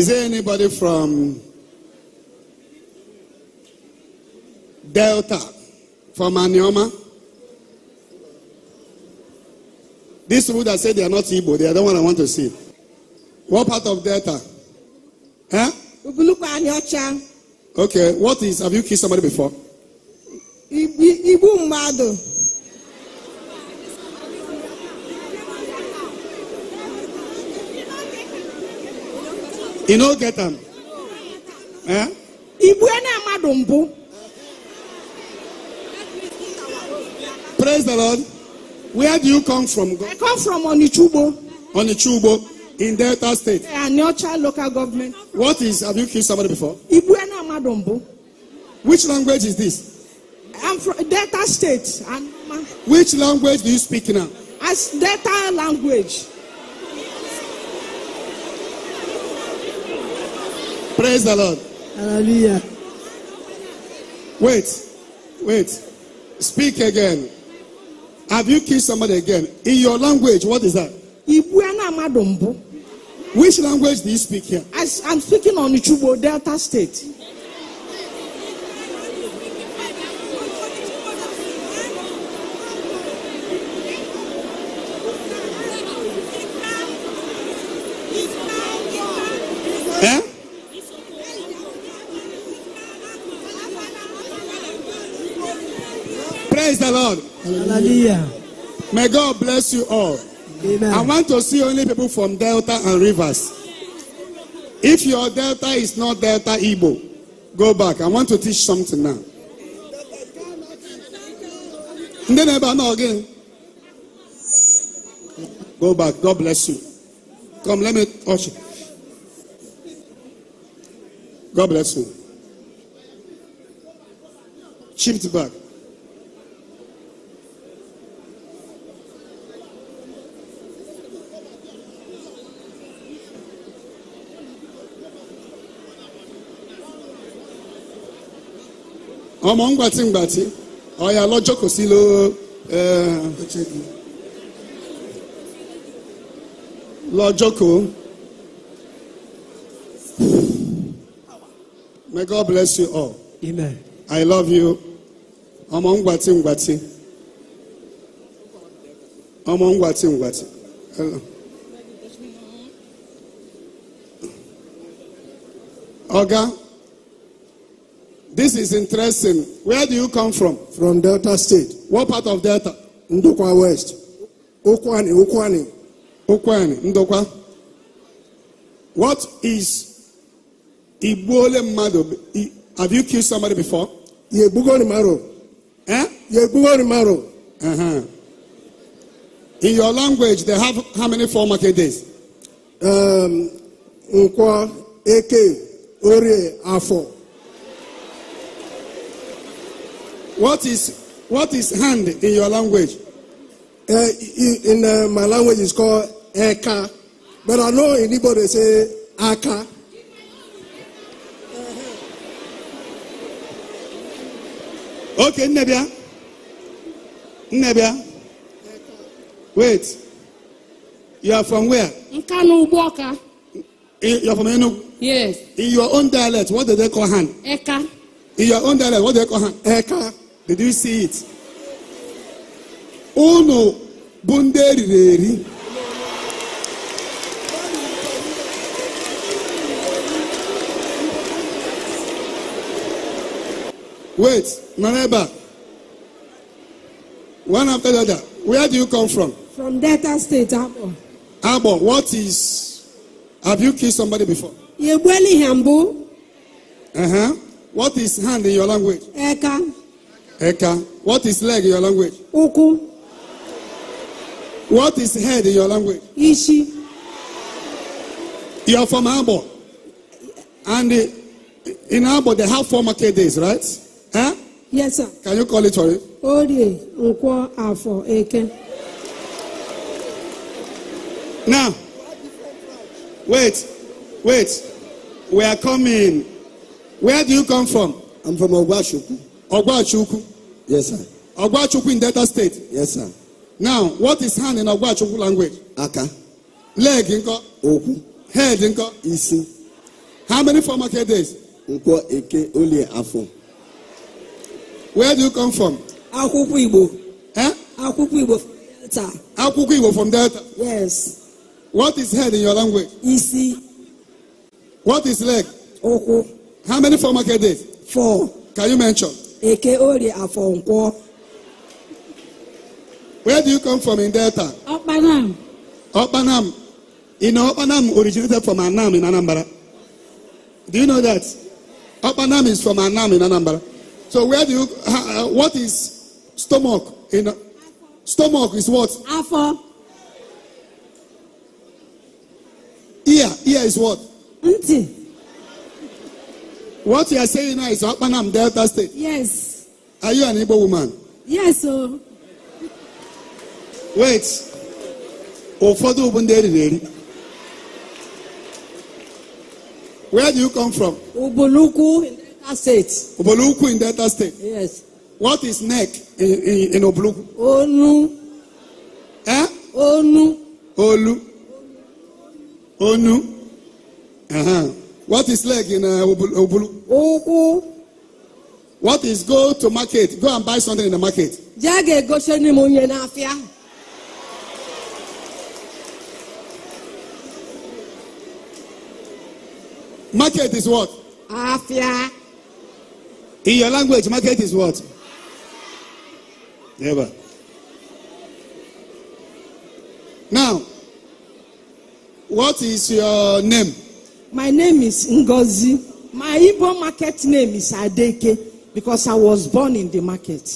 Is there anybody from Delta, from Anioma? These people that say they are not Igbo, they are the one I want to see. What part of Delta? Huh? Okay, what is, have you kissed somebody before? Igbo Mado. You know, get them. Eh? Praise the Lord. Where do you come from? God? I come from Onichubo. Onichubo in Delta State. I am Neocha local government. What is, have you killed somebody before? Ibuena Madombo. Which language is this? I'm from Delta State. Which language do you speak now? As Delta language. Praise the Lord. Hallelujah. Wait, wait. Speak again. Have you kissed somebody again? In your language, what is that? Which language do you speak here? I, I'm speaking on Chubo Delta State. God. Hallelujah. May God bless you all. Amen. I want to see only people from Delta and Rivers. If your Delta is not Delta Igbo, go back. I want to teach something now. Then know again. Go back. God bless you. Come, let me touch you. God bless you. Chipped back. ọmọ ń gbàtí ngbàtí ọ̀yà si kò sí ló lọ́jọ́ kò. May God bless you all. Amen. I love you. ọmọ ń gbàtí ọmọ ń gbàtí Ọga. This is interesting. Where do you come from? From Delta State. What part of Delta? Ndokwa West. Okwani, Okwani. Okwani, Ndokwa. What is Igbole Mado? Have you killed somebody before? Yegbugoni Maro. Eh? Yegbugoni Maro. Uh-huh. In your language, they have how many four market days? Um, Nkwa, Eke, Orie, Afo. What is what is hand in your language? Uh, in uh, my language, it's called eka, but I know anybody say aka. Okay, Nebia. Nebia. Wait. You are from where? Nkanu Uboka. You are from Enugu? Yes. In your own dialect, what do they call hand? Eka. In your own dialect, what do they call hand? Eka. Did you see it? Unu bụ ndị eriri eri. Wait, nọrọ ebe a. One after the other. Where do you come from? From Delta State, Abo. Abo, what is. Have you kissed somebody before? Yegbueli Hambu. Uh huh. What is hand in your language? Eka. Eka. What is leg in your language? Uku. What is head in your language? Ishi. You are from Abo. And in Abo, they have four market days, right? Huh? Yes, sir. Can you call it for it? Now, wait, wait. We are coming. Where do you come from? I'm from Ogwashuku. Ogwachukwu. Yes, sir. Ogwachukwu in Delta State. Yes, sir. Now, what is hand in Ogwachukwu language? Aka. Leg nko. Oku. Head nko. Isi. How many former days? Nkwo eke olie afọ. Where do you come from? Akwụkwọ Igbo. Eh? Akwụkwọ Igbo Delta. Akwụkwọ Igbo from Delta. Yes. What is head in your language? Isi. What is leg? Oku. How many former days? Four. Can you mention? Eke Orie Afonko. Where do you come from in Delta? Okpanam. Okpanam. You know, Okpanam originated from Anam in Anambra. Do you know that? Okpanam is from Anam in Anambra. So where do you, uh, what is stomach? In, uh, stomach is what? Afo. Ear, ear is what? Nti. What you are saying now is Okpanam Delta State. Yes. Are you an Igbo woman? Yes, Oh. Wait. Ụfọdụ bụ ndị eriri eri. Where do you come from? Ubulukwu in Delta State. Ubulukwu in Delta State. Yes. What is neck in in, in Ubulukwu? Onu. Eh? Onu. Olu. Onu. Uh -huh. What is leg in uh, Obulu? Uku. What is go to market? Go and buy something in the market. Jage go sheni munye na afia. Market is what? Afia. In your language, market is what? Never. Now, what is your name? My name is Ngozi. My Igbo market name is Adeke because I was born in the market.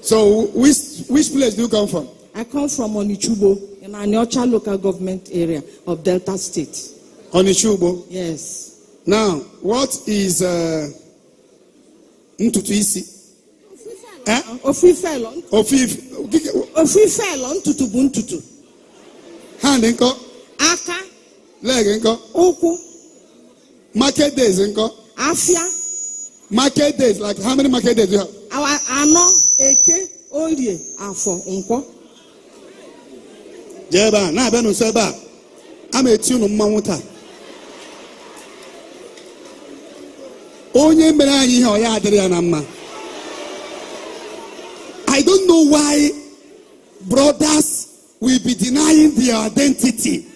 So, which, which place do you come from? I come from Onichubo in Aniocha local government area of Delta State. Onichubo? Yes. Now, what is uh, Ntutu Isi? Ofife lọ. Eh? Ofife. Ofife ntutu bụ ntutu. Ha dị Aka. leg nkọ ụkwụ market days nkọ afịa market days like how many market days you have? anọ eke orie afọ nkwọ jee ebe a na-abịa n'ụsọ ebe a a ma-eti unu mmanwụ taa onye mere anyị ihe ọ ya adịrị ya na mma I don't know why brothers will be denying their identity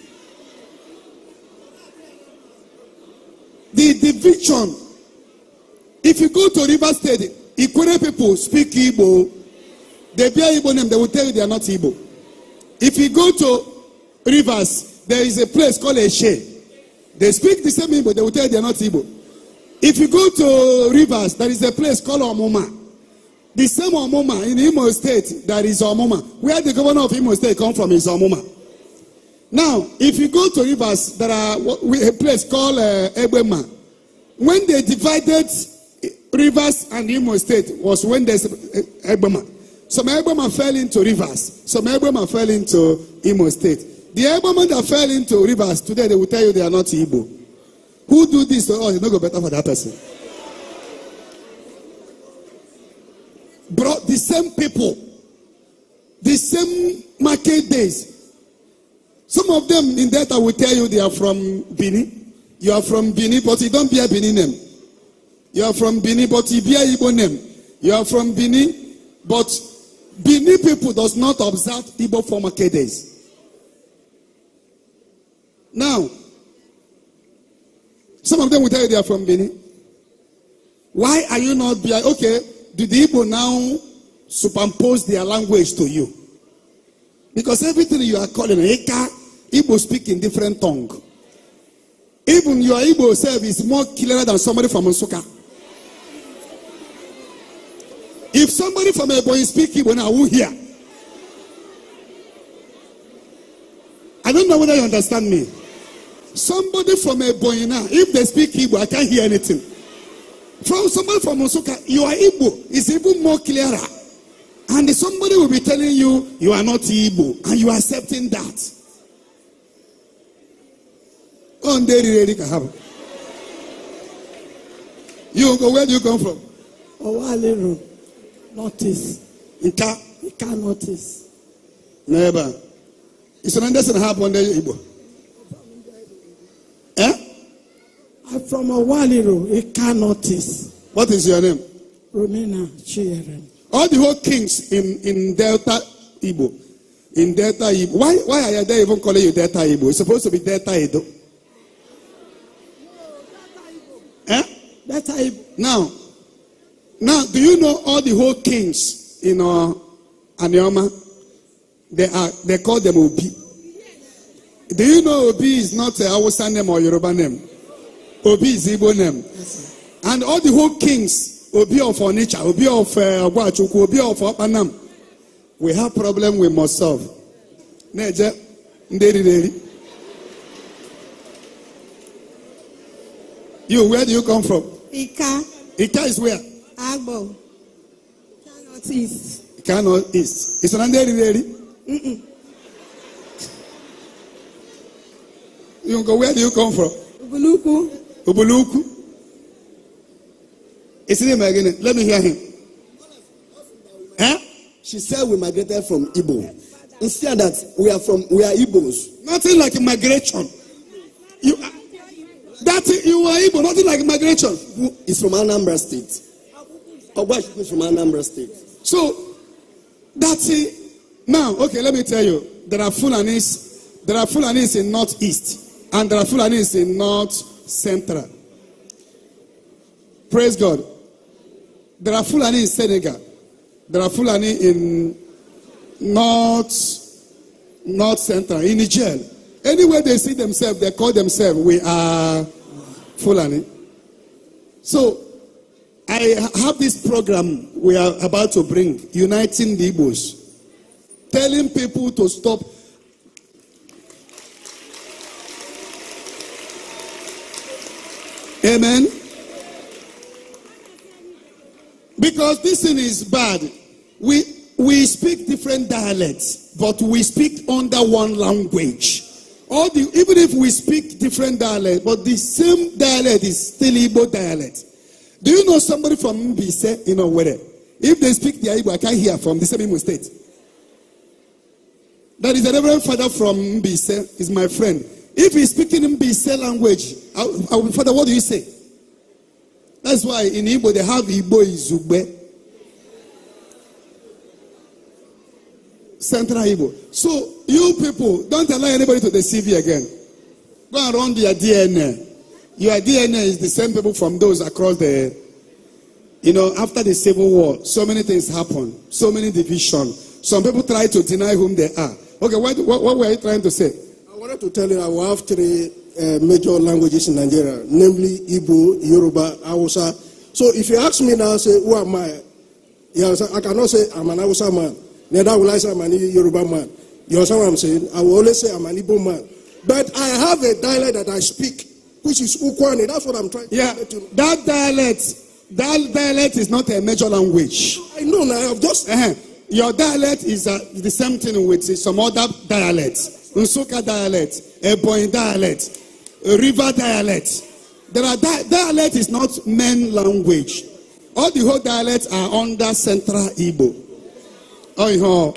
The division. If you go to River State, Ikwere people speak Igbo. They bear Igbo name, they will tell you they are not Igbo. If you go to Rivers, there is a place called Eshe. They speak the same Igbo, they will tell you they are not Igbo. If you go to Rivers, there is a place called Omuma. The same Omuma in Imo State, there is Omuma. Where the governor of Imo State come from is Omuma. Now, if you go to rivers, there are a place called uh, Ebema. When they divided eh, rivers and Imo State was when there's Ebema. Eh, Some Ebema fell into rivers. Some Ebema fell into Imo State. The Ebema that fell into rivers, today they will tell you they are not Igbo. Who do this to oh, us? It's not go better for that person. Brought the same people, the same market days, Some of them in that I will tell you they are from Benin. You are from Benin, but you don't bear Benin name. You are from Benin, but you bear Igbo name. You are from Benin, but Benin people does not observe Igbo former days. Now, some of them will tell you they are from Benin. Why are you not behind? Okay, do the Igbo now superimpose their language to you? Because everything you are calling Eka, Igbo speak in different tongue. Even your Igbo self is more clearer than somebody from Nsuka. If somebody from Ebonyi speak Igbo now, who hear? I don't know whether you understand me. Somebody from Ebonyi now, if they speak Igbo, I can't hear anything. From somebody from Nsuka, your Igbo is even more clearer. And somebody will be telling you, you are not Igbo, and you are accepting that. One day really can happen. You go, where do you come from? Owale notice. Northeast. Nka? Nka Northeast. Neighbor. It's an understanding happened there, Igbo. Eh? I'm from Owale Road, Nka Northeast. What is your name? Romina Chiyerem. All the whole kings in, in Delta Igbo. In Delta Igbo. Why, why are they even calling you Delta Igbo? It's supposed to be Delta Igbo. That type. Now, now, do you know all the whole kings in uh, Anioma? They are they call them Obi. Do you know Obi is not a Hausa name or Yoruba name? Obi is Igbo name. and all the whole kings, Obi of Onitsha, Obi of Ogwachukwu, uh, Obi of Opanam, we have problem we must solve. Neje, nderi deri. You, where do you come from? Ika. Ika is where? Agbo. Cannot East. Cannot North East. Is Nanderi ready? Mm-mm. You go, where do you come from? Ubuluku. Ubuluku. Is it him again? Let me hear him. Huh? She said we migrated from Igbo. Instead that we are from we are Igbos. Nothing like migration. You are, That you are Igbo, nothing like migration. Who is from Anambra State? Ogbashi is from Anambra State. So, that's it. Now, okay, let me tell you. There are Fulanis, there are Fulanis in Northeast, and there are Fulanis in North Central. Praise God. There are Fulani in Senegal. There are Fulani in North, North Central, in Niger. Anywhere they see themselves, they call themselves, we are Fulani. So, I have this program we are about to bring, Uniting the Igbos, telling people to stop. Amen. Because this thing is bad. We, we speak different dialects, but we speak under one language. All the, even if we speak different dialect, but the same dialect is still Igbo dialect. Do you know somebody from Mbise in Owerri? If they speak the Igbo, I can't hear from the same Imo state. That is a reverend father from Mbise, is my friend. If he's speaking Mbise language, I, I, father, what do you say? That's why in Igbo they have Igbo Izugbe. Central Ibo. So you people, don't allow anybody to deceive you again. Go and run your DNA. Your DNA is the same people from those across the, you know, after the civil war, so many things happen, so many division. Some people try to deny whom they are. Okay, what, what, what were you trying to say? I wanted to tell you that we have three uh, major languages in Nigeria, namely Igbo, Yoruba, Hausa. So if you ask me now, say, who am I? Yeah, I cannot say I'm an Hausa man. Neither will I say I'm an Yoruba man. You understand what I'm saying? I will always say I'm an Igbo man. But I have a dialect that I speak, which is Ukwane. That's what I'm trying to yeah, That dialect, that dialect is not a major language. I know now. I've just. Uh-huh. Your dialect is uh, the same thing with some other dialects. Nsuka dialect, Ebo dialect, River dialect. There are di- dialect is not main language. All the whole dialects are under Central Igbo. Ọ ọ̀hìhàn.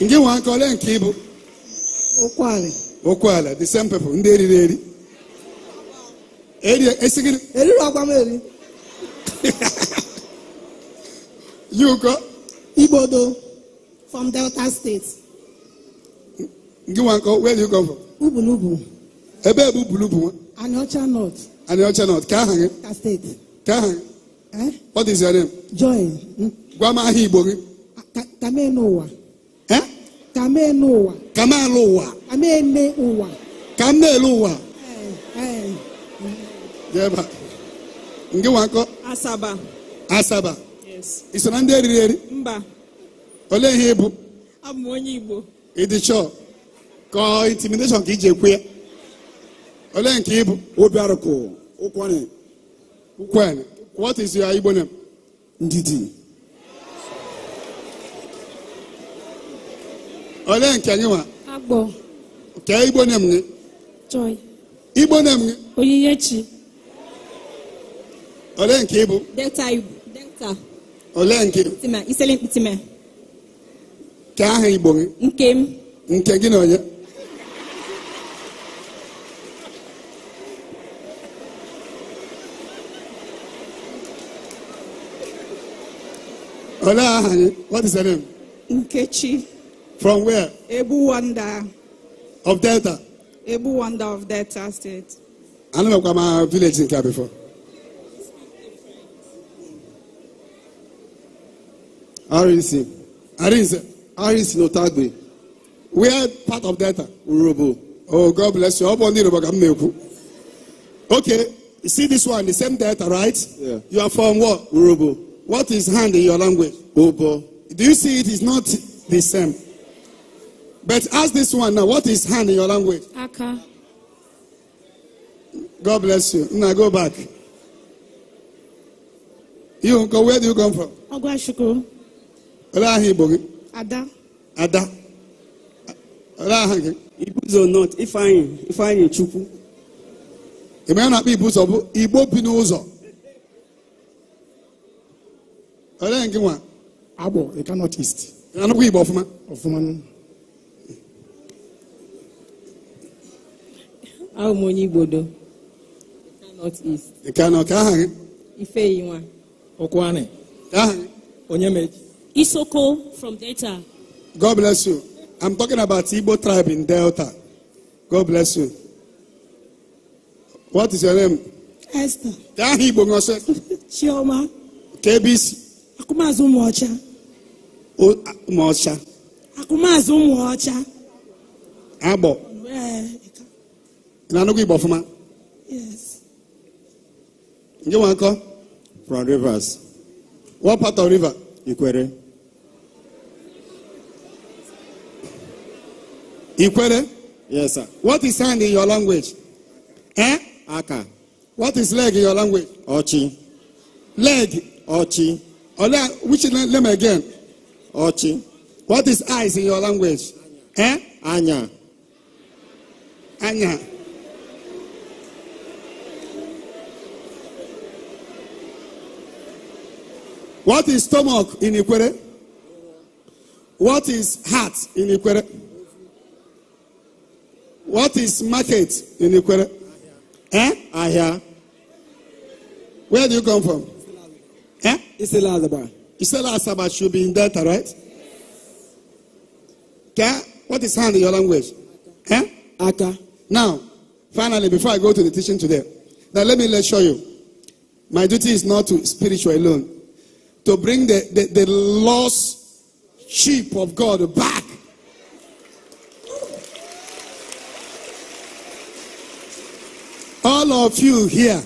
Nke nwa aka ole nke ịbụ? Okwu ala. the same people, ndị eriri eri. Eri esi Eriri ọgwa m eri. Yi ụkọ. Igbodo from Delta State. Nke nwa aka, where you come from? Ubulubu. Ebe ebe Ubulubu nwa? Anịọcha North. Anịọcha North, ka aha gị? Ka steeti. Ka aha gị? Eh? What is your name? Joy. Hmm? Gwama aha ah, Igbo gị. Kamenu ụwa. Eh? Kamenu ụwa. Kamelu ụwa. Kamenu ụwa. Kamelu ụwa. Eh, eh. Jeba. Nke wakọ. Asaba. Asaba. Yes. Ị so na ndị eriri eri? Mba. Olee ihe ị Abụ m onye Igbo. Ị dị chọọ. Ka intimidation ka iji ekwu ya. Olee nke ị Obi arụkụ. Ụkwani. Ụkwani. what is your Igbo name? Ndidi. Olee nke gị nwa? Agbo. Kee Igbo name gị? Joy. Igbo name gị? Onyinyechi. Olee nke ibu. Delta Igbo. Delta. Olee nke? Mkpitima. Isele mkpitima. Kee aha Igbo gị? Nke m. Nke gị na onye? Ola, what is her name? Nkechi. From where? Ebuwanda. Of Delta? Ebuwanda of Delta State. I don't know what my village in Kia before. RNC. RNC. RNC Notagbe. We are part of Delta. Urobo. Oh, God bless you. Okay. You see this one, the same Delta, right? Yeah. You are from what? Urobo. What is hand in your language? Obo. Do you see it is not the same? But ask this one now. What is hand in your language? Aka. God bless you. Now go back. You go. Where do you come from? Ogwashuku. Olahibogi. Ada. Ada. Olahangi. Ibuzo not. Ifeanyi. Ifeanyi Chukwu. Ị ma ya na-akpọ Ibuzo bụ Igbo bi n'ụzọ. Olee nke nwa? Agbọ Ika North East. Anụkwa Igbo ọfụma? Ọfụma. Ahụ m onye Igbo do. ka Nọt Ika Ị ka aha gị? Ifeyi nwa. Ọkwani. Ka aha gị? Onye meji. Isoko from Delta. God bless you. I'm talking about Igbo tribe in Delta. God bless you. What is your name? Esther. Ka aha Igbo ṅụsị? Chioma. Ka ebe isi? akụmazụ ụmụọcha ụmụọcha akụmazụ ụmụọcha agbọ na-anụgụ igbo ọfụma ndị nwankọ from rivers what part of river ikwere ikwere yes sir what is hand in your language eh aka what is leg in your language ọchị leg ọchị Ola, which name again? Ochi. What is eyes in your language? Anya. Anya. Anya. What is stomach in Ikwere? What is heart in Ikwere? What is market in Ikwere? Eh? Ahia. Where do you come from? Eh? Iselazaba. Iselazaba should be in Delta, right? Yes. Okay? What is hand in your language? Yeah, Eh? Aka. Now, finally, before I go to the teaching today, now let me show you. My duty is not to spiritual alone, to bring the, the, the lost sheep of God back. All of you here,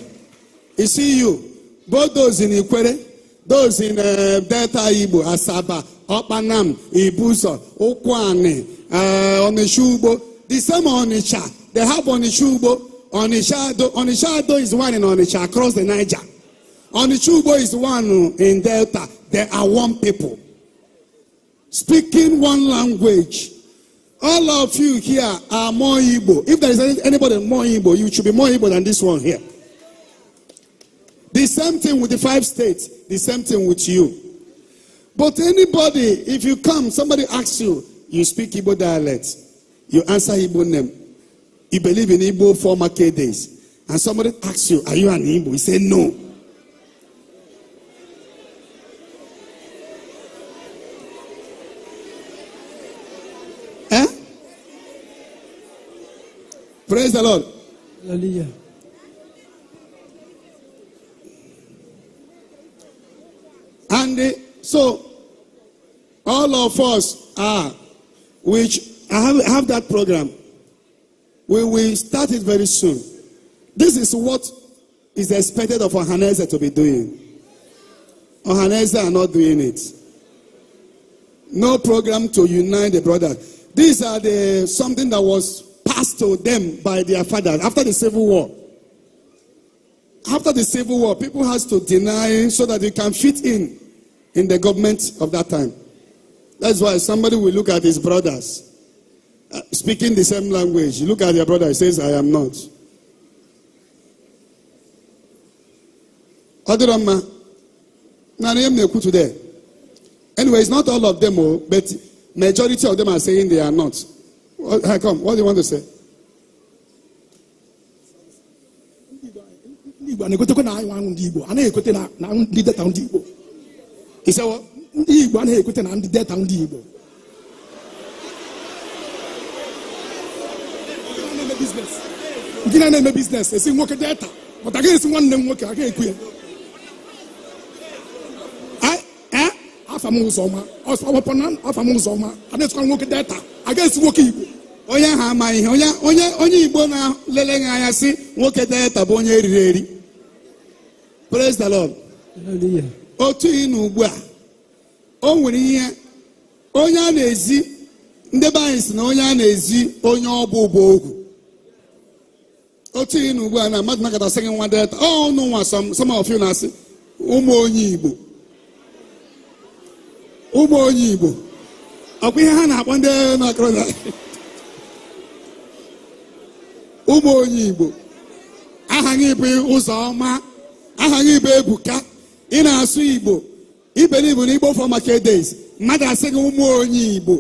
you see you. both those in Ikwere, those in uh, Delta Igbo, Asaba, Okpanam, Ibuso, Okwane, uh, Onishugbo, the same Onisha. They have Onishugbo, Onishado. Onishado is one in Onisha across the Niger. Onishugbo is one in Delta. There are one people. Speaking one language. All of you here are more Igbo. If there is anybody more Igbo, you should be more Igbo than this one here. The same thing with the five states, the same thing with you. But anybody, if you come, somebody asks you, you speak Ibo dialect, you answer Ibo name, you believe in Ibo former days, and somebody asks you, Are you an Ibo?" You say, No. Eh? Praise the Lord. Hallelujah. so, all of us are, which I have, have that program. We will start it very soon. This is what is expected of Ohaneze to be doing. Ohaneze are not doing it. No program to unite the brothers. These are the something that was passed to them by their fathers after the civil war. After the civil war, people has to deny so that they can fit in. in the government of that time. That's why somebody will look at his brothers uh, speaking the same language. look at your brother, he says, I am not. Adirama, Nariam Nekutu there. Anyway, it's not all of them, oh, but majority of them are saying they are not. What, how come? What do you want to say? Igbo, na na anyị nwa ndị Igbo, a naghị ekote na ndị data ndị Igbo. isewo ndị igbo anaghị ekweta na ndị deta ndị igbo ndị na-eme biznes esi nwoke deta pụta gaghị esi nwanne m nwoke aga ekwu ya afam ụzọ ọma afam ụzọ ọma na-esikwa nwoke deta aga esi nwoke igbo onye ha amaghị ihe onye onye igbo na-lele gị anya si nwoke deta bụ onye eriri eri praise the lord otu ịnụ na ugbu a o nwere ihe onye a na-ezi ndị be anyị si na onye a na-ezi onye ọ bụ bụ ogwu otu ịnụ na ugbu a na mmadụ nakatasị gị nwa delta ọ nụ nwa some of you na-asị ụmụ onye igbo ụmụ onye igbo ọkwa ihe ha na-akpọ ndị na ụmụ onye igbo aha gị bụ ụzọ ọma aha gị bụ ebuka ị na-asụ igbo iberi igbo na igbo for market days mmadụ asị gị ụmụ onye igbo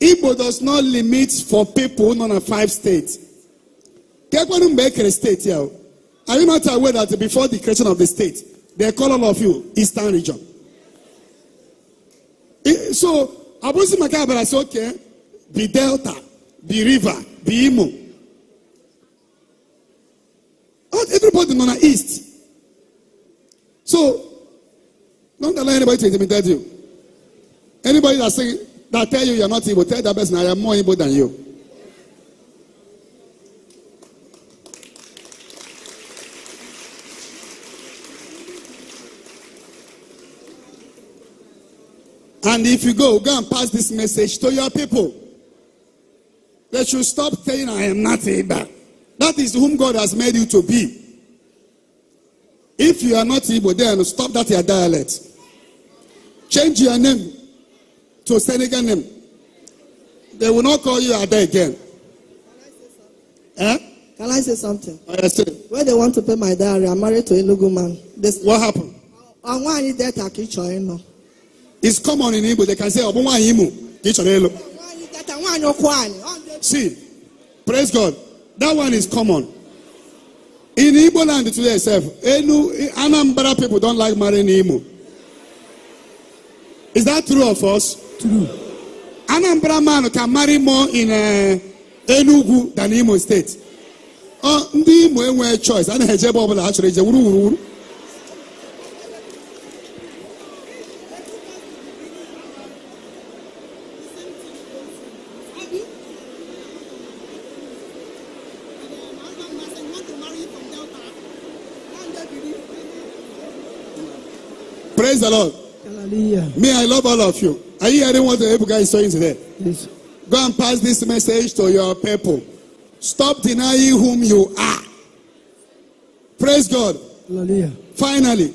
igbo does not limit for people nọ na five states kekwere mgbe e kere steeti ahụ are you not aware that before the creation of the state they call all of you eastern region so abụzi maka abara sị oke bi delta bi river bi imo everybody nọ na east So, don't allow anybody to intimidate you. Anybody that say that tell you you're not evil, tell that person I am more evil than you. And if you go, go and pass this message to your people. They should stop saying, I am not able. That is whom God has made you to be. If you are not Igbo, then stop that your dialect. Change your name to Senegal name. They will not call you Ada again. Eh? Can I say something? Oh, yes, sir. Where they want to pay my diary, I'm married to a Lugu man. They, what happened? I want to that Akichoino. It's common in Igbo. They can say, Obuwanyimu, Kichoino. See, praise God. That one is common. In Igbo land today itself, Enu, Anambra people don't like marry Nimo. Is that true of us? True. Anambra man can marry more in uh, Enugu than Imo state. Oh, ndị Imo enweghị choice a na-eje ebe ọbụla ha chọrọ eje wuru wuru wuru all of you. Are you hearing what the guy is saying today? Yes. Go and pass this message to your people. Stop denying whom you are. Praise God. Hallelujah. Finally,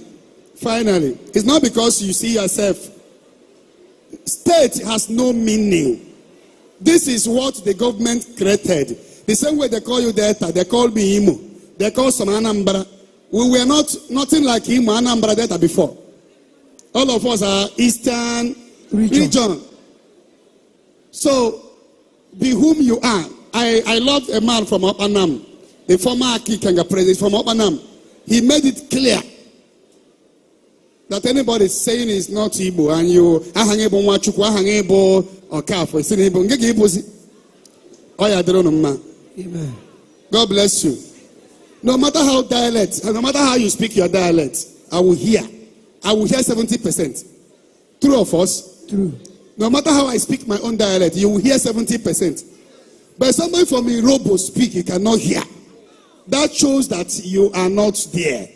finally, it's not because you see yourself. State has no meaning. This is what the government created. The same way they call you Delta, they call me Imo, they call some Anambra. We were not nothing like Imo Anambra Delta before. All of us are Eastern region. region. So, be whom you are. I, I love a man from Opanam, the former Akikenga president from Opanam. He made it clear that anybody saying is not Ibo and you ahang Igbo Nwachukwu, ahang Igbo Okafo, it's in Igbo. Nke ka Igbo si? Ọ ya dịrị unu mma. God bless you. No matter how dialect, no matter how you speak your dialect, I will hear. I will hear 70%. True of us, True. No matter how I speak my own dialect, you will hear 70%. But somebody from will speak, you cannot hear. That shows that you are not there.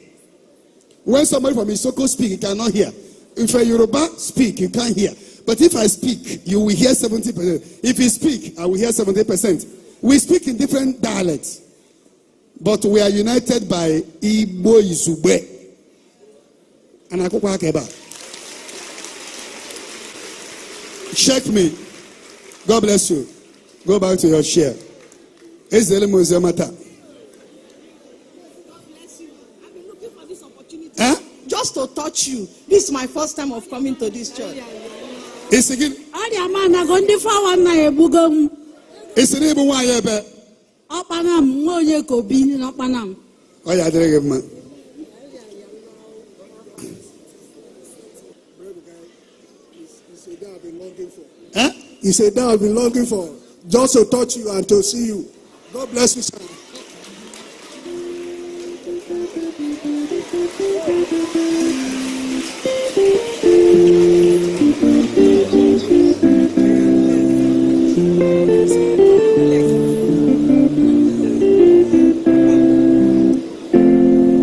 When somebody from Isoko speak, you cannot hear. If a Yoruba speak, you can't hear. But if I speak, you will hear 70%. If you speak, I will hear 70%. We speak in different dialects. But we are united by Igbo Izube. And anaakokɔ akɛba shake me god bless you go back to your chair ezele mo ze mata. Just to touch you. This is my first time of coming to this church. Is it? Ọrịa ma na ndị fọwa nna ya m. Esi na ebu nwaanyị ebe. Ọkpana m nwa onye ka obi na m. Ọ ya adịrịghị mma. He said, that I've been longing for, just to touch you and to see you. God bless you, sir.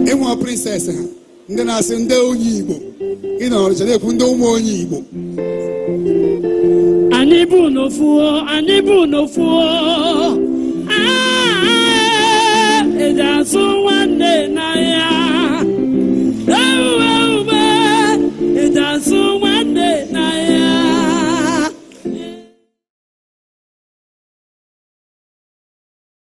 ịnwa prinsesị ndị na-asị ndị onye Igbo ị nọrọ chere ekwu ndị ụmụ onye Igbo anyị bụ n'ofuo anyị bụ n'ofuo eji azụ nwanne n'ahịa ewu ewu